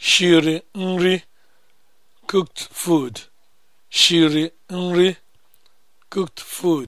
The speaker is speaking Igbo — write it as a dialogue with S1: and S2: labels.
S1: shiri nri cooked food nri cooked food